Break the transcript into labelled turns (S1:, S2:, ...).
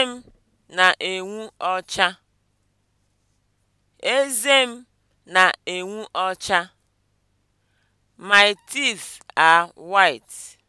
S1: Eze m na-enwu ọcha. Eze m na-enwu ọcha. My teeth are white.